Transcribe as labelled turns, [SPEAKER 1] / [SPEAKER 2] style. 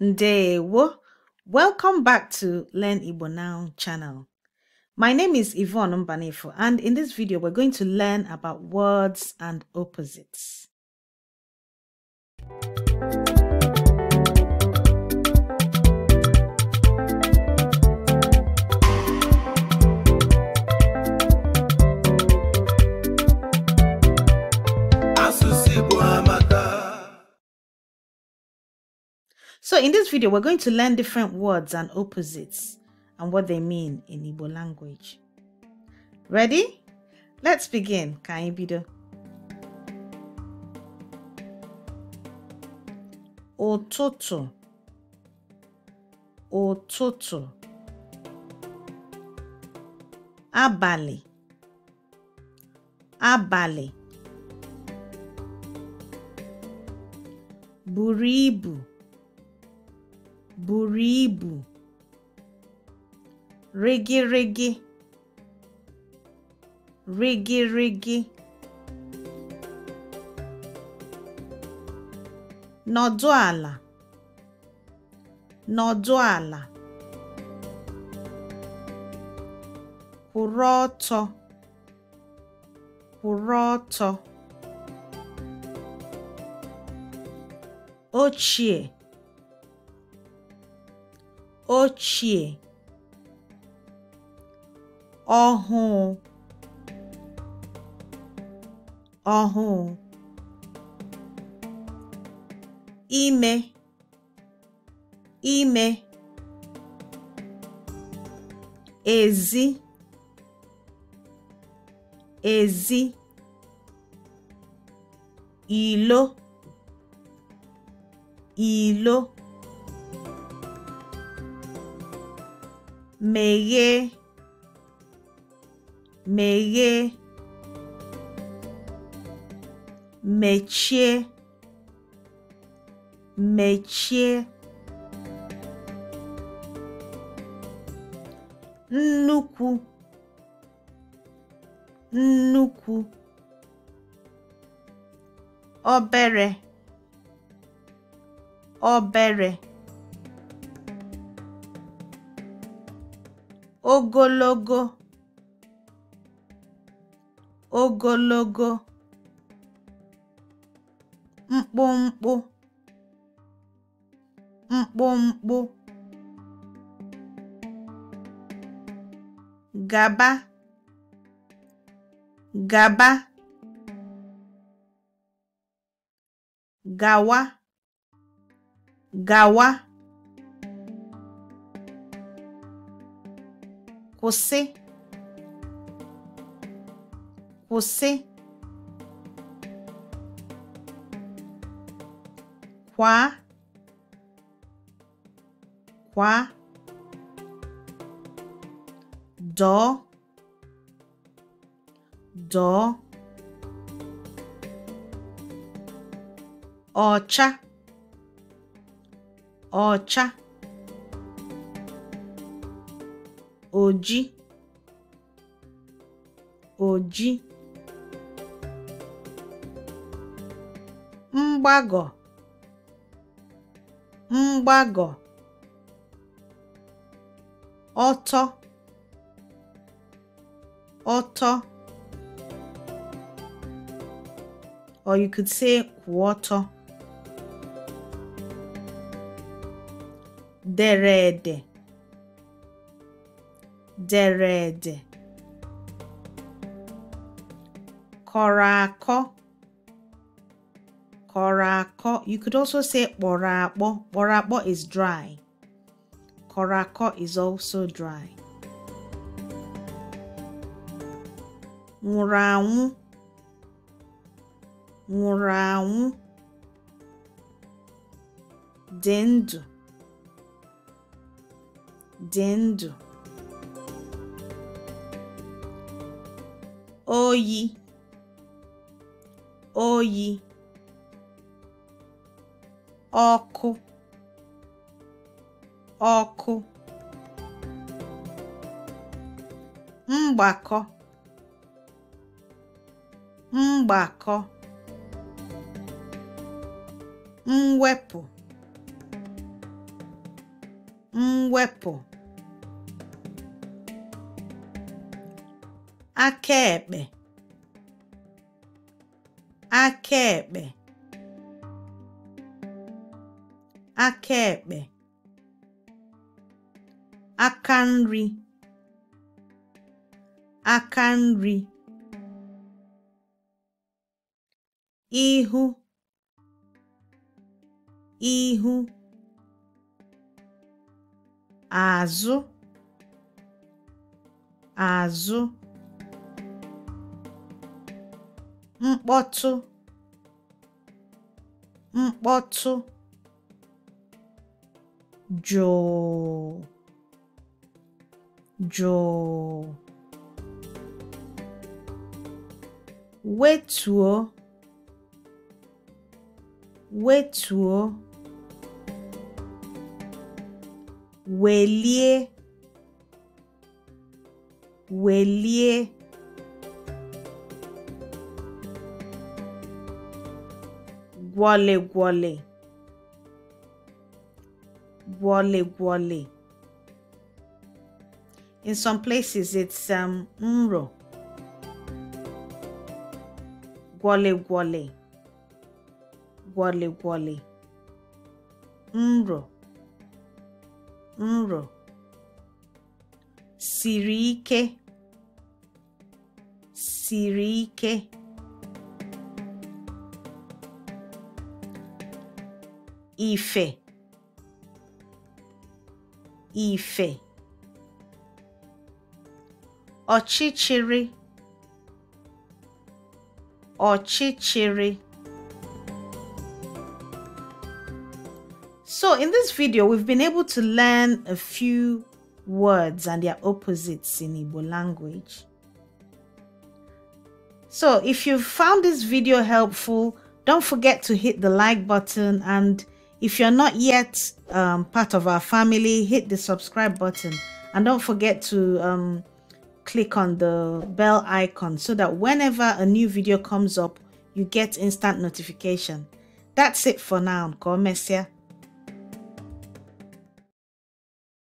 [SPEAKER 1] Ndewo. Welcome back to Learn Igbo Now channel. My name is Yvonne Mbanefo and in this video we're going to learn about words and opposites. So in this video, we're going to learn different words and opposites and what they mean in Igbo language. Ready? Let's begin. Kaibido. Ototo. Ototo. Abali. Abali. Buribu. buru ibu rigirigi (rigirigi), nọdụ ala nọdụ ala kwụrụ ọtọ kwụrụ ọtọ ochie ochie ọhụụ ọhụụ ime ime ezi ezi ilo ilo meghee meghee mechie mechie nnukwu nnukwu obere obere ogologo ogologo mkpụmkpụ mkpụmkpụ gaba gaba gawa gawa Você. Você. Quá. Quá. Dó. Dó. Ọcha. Ọcha. oji oji mgbagọ mgbagọ̀ ọtọ ọtọ or you could say ọtọ dere ede dere ede kọrọ akọ kọrọ akọ you could also say kpọrọ akpọ kpọrọ akpọ is dry kọrọ akọ is also dry nwụrụ anwụ nwụrụ anwụ dị ndụ dị ndụ oyi oyi ọkụ ọkụ mgbakọ mgbakọ mwepụ mwepụ akaekpe akaekpe akaekpe aka nri aka nri ihu ihu azụ azụ mkpọtụ mkpọtụ jụụ jụụ wetuo wetuo welie welie Wale wale. Wale wale. In some places, it's um, mro. Wale wale. Wale wale. Mro. Mro. sirike. Sirike. Ife. Ife. Ọchịchịrị. Ọchịchịrị. So in this video, we've been able to learn a few words and their opposites in Igbo language. So if you found this video helpful, don't forget to hit the like button and if you're not yet um, part of our family, hit the subscribe button and don't forget to um, click on the bell icon so that whenever a new video comes up, you get instant notification. That's it for now. Go Messia.